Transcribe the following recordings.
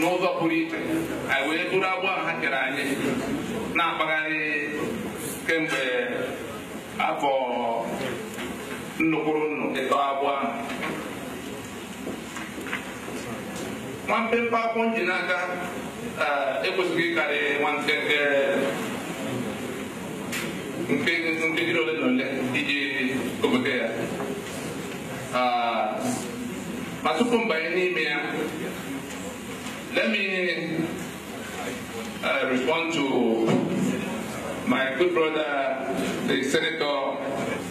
n'ụzọ pụrụ iche anyị wee bụrụ a ha kere anyị na-akpagharị kemgbe afọ nnukwuru nnu ịtọ agbọ ahụ nwa akwụ nji n'aka eh, ekwesịghị ịkarị nwa nkenke eh, nkeji ole na ole iji obodo ya ah, ma tupu mbanye n'ime ya Let me uh, respond to my good brother, the senator,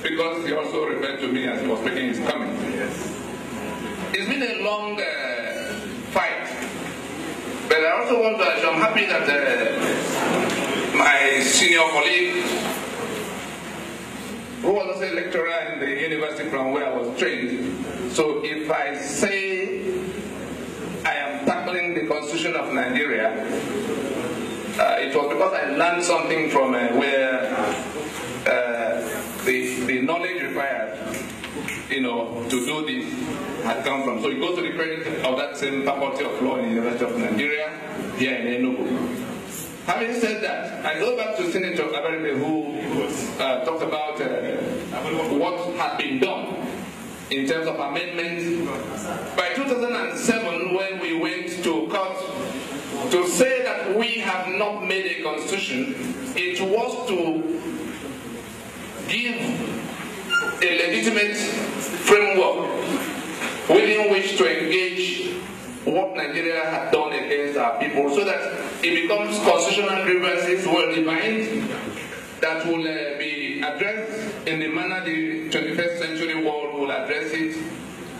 because he also referred to me as he was making his comment. It's been a long uh, fight, but I also want to, I'm happy that uh, my senior colleague, who was also a lecturer in the university from where I was trained, so if I say because I learned something from uh, where uh, the, the knowledge required, you know, to do this had come from. So he goes to the credit of that same faculty of law in the University of Nigeria, here in Enugu. Having said that, I go back to Senator Abaribe who uh, talked about uh, what had been done in terms of amendments. By 2007, when we went to court not made a constitution, it was to give a legitimate framework within which to engage what Nigeria had done against our people so that it becomes constitutional grievances well defined that will uh, be addressed in the manner the 21st century world will address it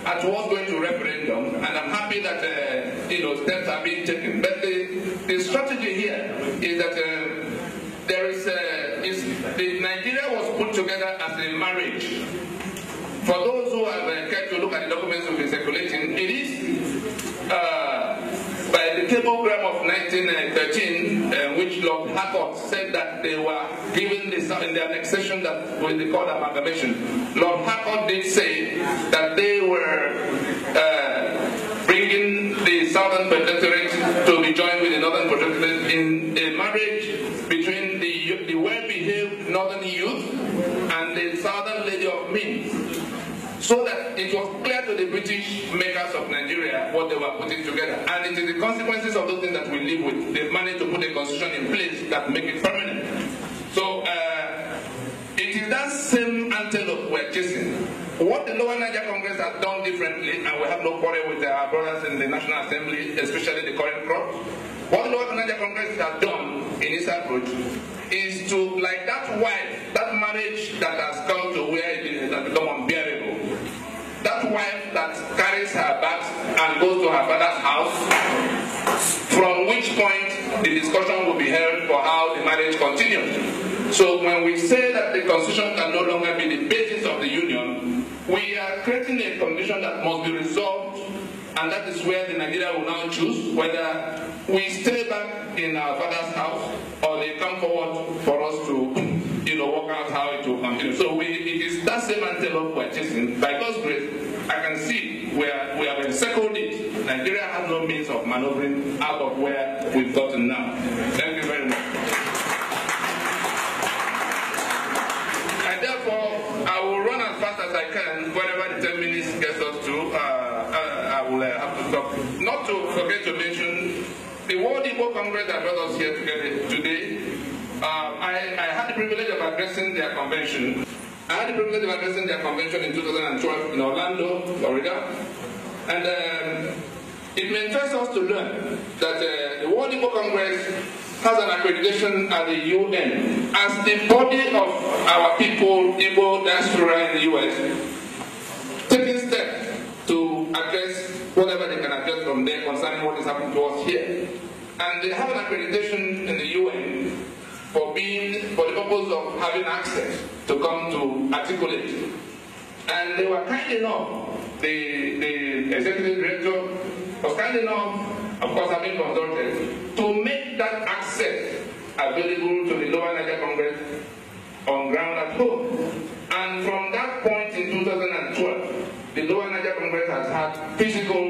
at what's going to referendum, and I'm happy that uh, you know steps are being taken. But the, the strategy here is that uh, there is, uh, is the Nigeria was put together as a marriage. For those who have uh, kept to look at the documents we've been circulating, it is uh, by the cablegram of 1913, uh, which Lord Harcourt said that they were. in the annexation that will be called amalgamation. Lord Hackett did say that they were uh, bringing the Southern Protectorate to be joined with the Northern Protectorate in a marriage between the, the well-behaved Northern youth and the Southern Lady of Means so that it was clear to the British makers of Nigeria what they were putting together. And it is the consequences of those things that we live with. They've managed to put a constitution in place that make it permanent. What the Lower Niger Congress has done differently, and we have no quarrel with our brothers in the National Assembly, especially the current crop, what the Lower Niger Congress has done in its approach is to, like that wife, that marriage that has come to where it is, has become unbearable, that wife that carries her bags and goes to her father's house, from which point the discussion will be held for how the marriage continues. So when we say that the constitution cannot creating a condition that must be resolved, and that is where the Nigeria will now choose whether we stay back in our father's house or they come forward for us to, you know, work out how it will continue. So we, it is that same antelope we're chasing. By God's grace, I can see where we have encircled it. Nigeria has no means of maneuvering out of where we've gotten now. Thank you. I can, whenever the 10 minutes gets us to, uh, I, uh, I, will uh, have to stop. Not to forget to mention the World Igbo Congress that brought us here together today. Uh, I, I had the privilege of addressing their convention. I had the privilege of addressing their convention in 2012 in Orlando, Florida. And um, it mentors us to learn that uh, the World Igbo Congress has an accreditation at the UN as the body of our people, Igbo, diaspora in the US, taking steps to address whatever they can address from there concerning what is happening to us here. And they have an accreditation in the UN for being, for the purpose of having access to come to articulate. And they were kind enough, the, the executive director was kind enough of course I'm consultants, to make that access available to the Lower Niger Congress on ground at home. And from that point in 2012, the Lower Niger Congress has had physical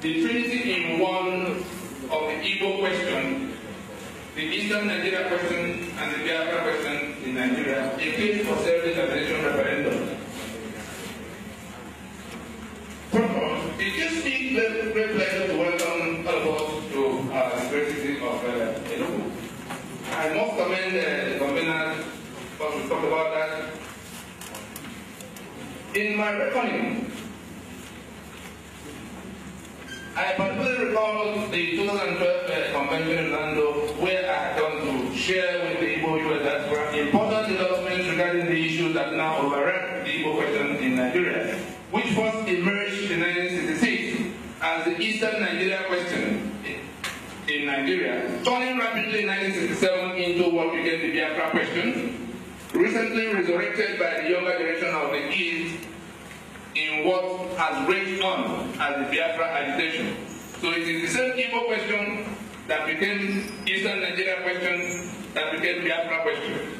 the trinity in one of the Igbo question, the Eastern Nigeria question, and the Biafra question in Nigeria, a case for self-determination referendum. First it gives me great, great pleasure to welcome all of us to uh, the great city of uh, Enugu. I must commend uh, the conveners, because we talked about that. In my reckoning, I particularly recall the 2012 uh, convention in Orlando where I had to share with the Igbo people that were important developments regarding the issues that now overrun the Igbo question in Nigeria, which first emerged in 1966 as the Eastern Nigeria question in Nigeria, turning rapidly in 1967 into what became the Biafra question, recently resurrected by the younger generation of the East in what has raged on as the Biafra agitation. So it is the same Igbo question that became Eastern Nigeria question that became Biafra question.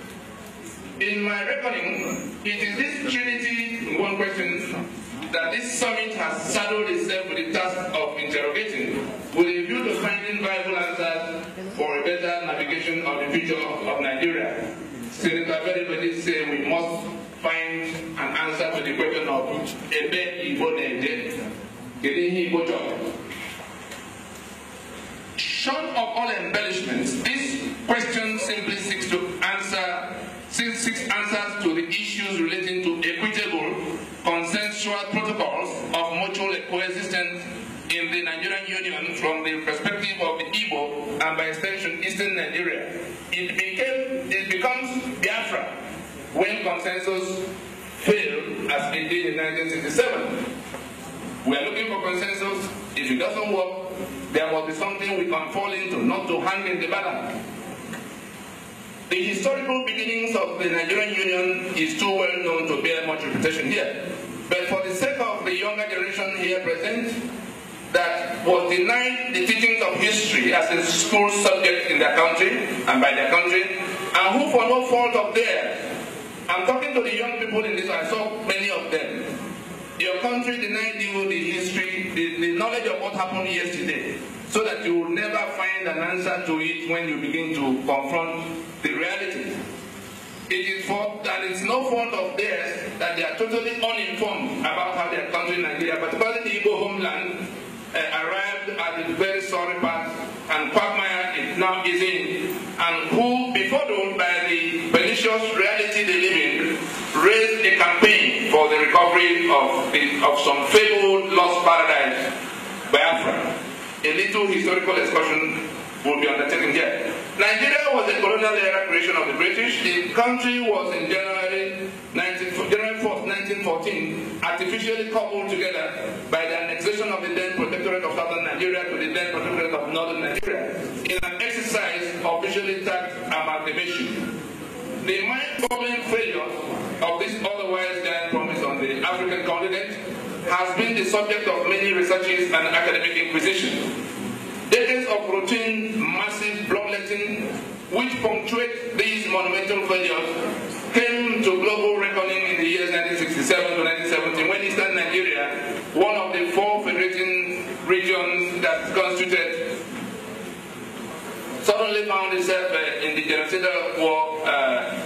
In my reckoning, it is this trinity one question that this summit has saddled itself with the task of interrogating with a view to finding viable answers for a better navigation of the future of, Nigeria. Senator Beribedi said we must find the question of ebe na short of all embellishments this question simply seeks to answer seeks, seeks answers to the issues relating to equitable consensual protocols of mutual coexistence in the Nigerian Union from the perspective of the Igbo and by extension Eastern Nigeria. It, became, it becomes Biafra when consensus failed as it did in 1967. We are looking for consensus. If it doesn't work, there must be something we can fall into, not to hang in the balance. The historical beginnings of the Nigerian Union is too well known to bear much repetition here. But for the sake of the younger generation here present, that was denied the teachings of history as a school subject in their country and by their country, and who for no fault of theirs to the young people in this, I saw many of them. Your country denied you the history, the, the knowledge of what happened yesterday, so that you will never find an answer to it when you begin to confront the reality. It is fault that it's no fault of theirs that they are totally uninformed about how their country, Nigeria, particularly the Igbo homeland, uh, arrived at the very sorry part, and quagmire is now is in, and who covering of, the, of some fabled lost paradise, Biafra. A little historical excursion will be undertaken here. Nigeria was a colonial era creation of the British. The country was in January, 19, January 4th, 1914, artificially coupled together by the annexation of the then protectorate of southern Nigeria to the then protectorate of northern Nigeria in an exercise officially tagged amalgamation. The mind-boggling failure of this otherwise giant promise on the African continent has been the subject of many researches and academic inquisition. Decades of routine, massive bloodletting, which punctuate these monumental failures, came to global reckoning in the years 1967 to 1970 when Eastern Nigeria, one of the four federating regions that constituted suddenly found itself uh, in the genocidal war, uh,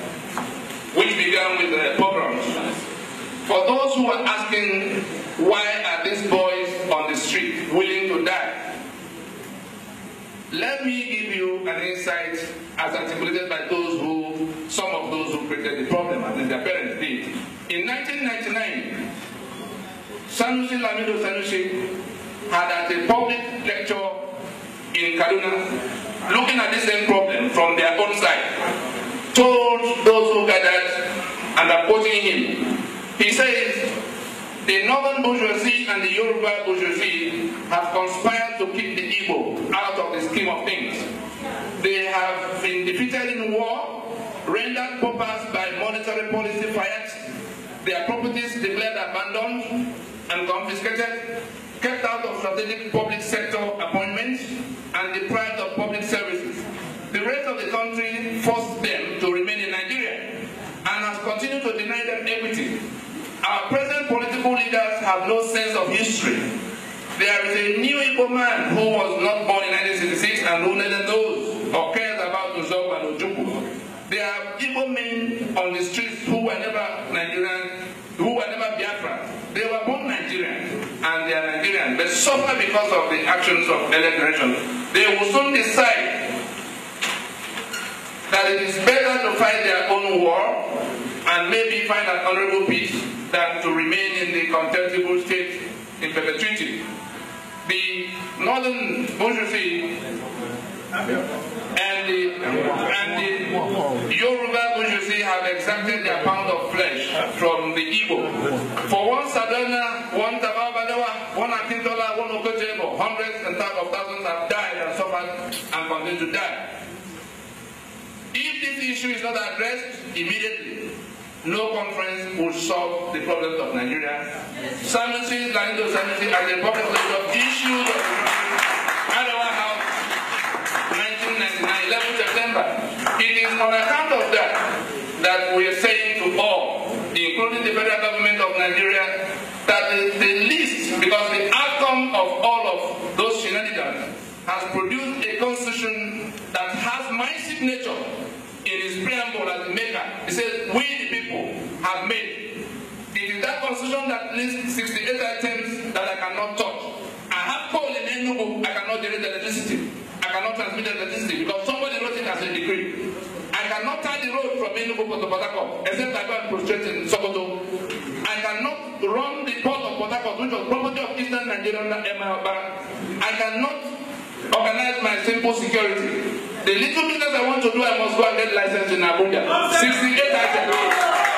which began with uh, pogroms. For those who are asking, why are these boys on the street willing to die? Let me give you an insight as articulated by those who, some of those who created the problem, and their parents did. In 1999, Sanusi Lamido Sanusi had at a public lecture in Kaduna looking at the same problem from their own side, told those who gathered and opposing him, he says, the northern bourgeoisie and the Yoruba bourgeoisie have conspired to keep the Igbo out of the scheme of things. They have been defeated in war, rendered paupers by monetary policy fiat, their properties declared abandoned and confiscated, kept out of strategic public sector appointments and deprived of public services. The rest of the country forced them to remain in Nigeria and has continued to deny them equity. Our present political leaders have no sense of history. There is a new Igbo man who was not born in 1966 and who neither knows or cares about Uzob and Ojukwu. There are Igbo men on the streets who were never suffer because of the actions of elect nation. they will soon decide that it is better to fight their own war and maybe find an honorable peace than to remain in the contemptible state in perpetuity. The northern bourgeoisie and the, and the Yoruba Bujusi have exacted their pound of flesh from the Igbo. For one Sadana, one Tababadawa, one Akintola, one Okojebo, hundreds and thousands of thousands have died and suffered and continue to die. If this issue is not addressed immediately, no conference will solve the problems of Nigeria. Yes. Sanusi, Lando Sanusi, and the problems of issues is on account of that that we are saying to all, including the federal government of Nigeria, that the, the least, because the outcome of all of those shenanigans has produced a constitution that has my signature in its preamble as the maker. It says, we the people have made. It is that constitution that lists 68 items that I cannot touch. I have called in Enugu, I cannot generate electricity. I cannot transmit electricity because somebody wrote it as a decree cannot turn the road from Enugu to Port Harcourt except I go and prostrate in Sokoto. I cannot run the port of Port Harcourt which was property of Eastern Nigerian Bank. I cannot organize my simple security. The little business I want to do, I must go and get license in Abuja. 68 items.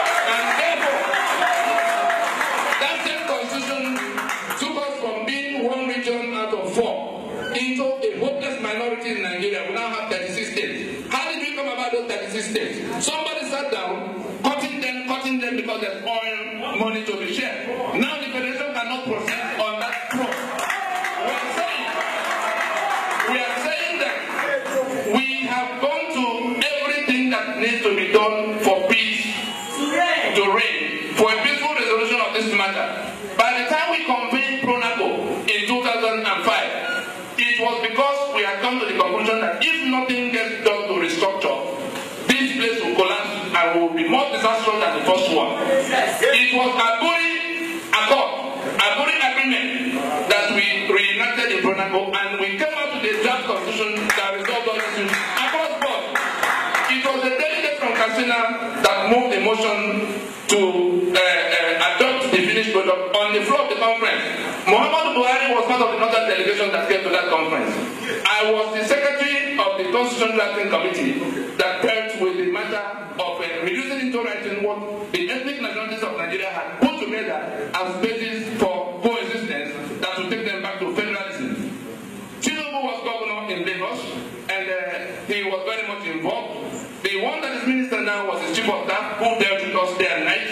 them because there's oil money to be shared. Now the federation cannot process people, and we came up with a draft constitution that resolved all issues across board. It was the delegate from Katsina that moved the motion to uh, uh, adopt the finished product on the floor of the conference. Muhammad Buhari was part of the northern delegation that came to that conference. I was the secretary of the constitution drafting committee that dealt with the matter of uh, reducing into writing what involved. The one that is minister now was the chief of staff who dealt with us day and night.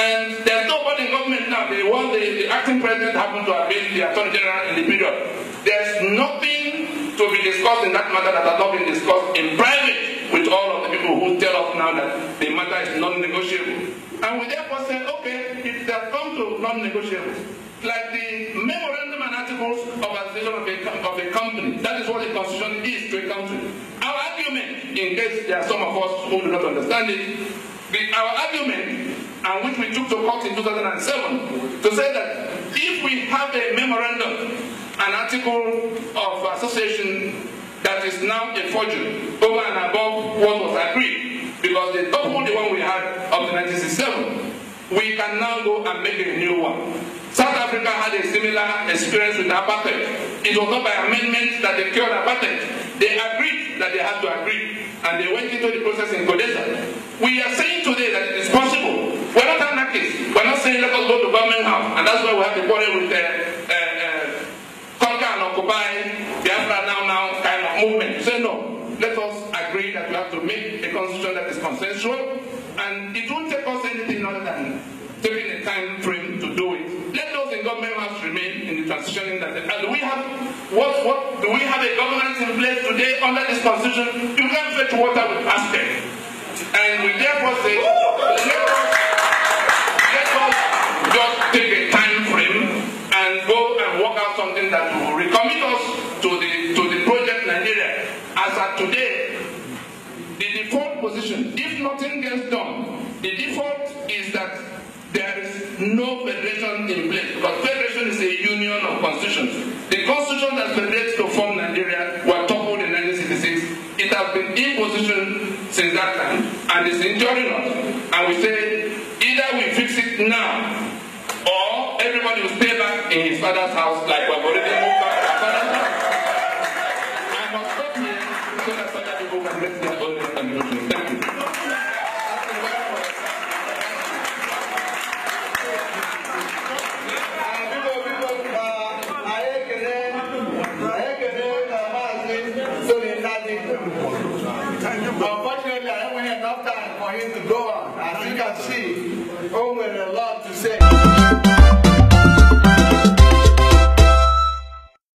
And there's nobody in government now. The one the, the acting president happened to have been the attorney general in the period. There's nothing to be discussed in that matter that has not been discussed in private with all of the people who tell us now that the matter is non-negotiable. And we therefore say, okay, it has come to non-negotiable. Like the memorandum and articles of association of a, of a company, that is what the constitution is to a country. in case there are some of us who do not understand it, the, our argument, and which we took to court in 2007, to say that if we have a memorandum, an article of association that is now a forgery over and above what was agreed, because they doubled the one we had of to 1967, we can now go and make a new one. South Africa had a similar experience with apartheid. It was not by amendment that they cured apartheid. They agreed that they had to agree. and they went into the process in Kodesa. We are saying today that it is possible today under this constitution, you can't fetch water with aspect. And we therefore say, let us, let us just take a time frame and go and work out something that will recommit us to the to the project Nigeria. As at today, the default position, if nothing gets done, the default is that there is no federation in place. Because federation is a union of constitutions. The constitution that federates to form and it's injuring us. And we say, either we fix it now, or everybody will stay back in his father's house like we've already moved back to our father's house. I must stop here so that other people can make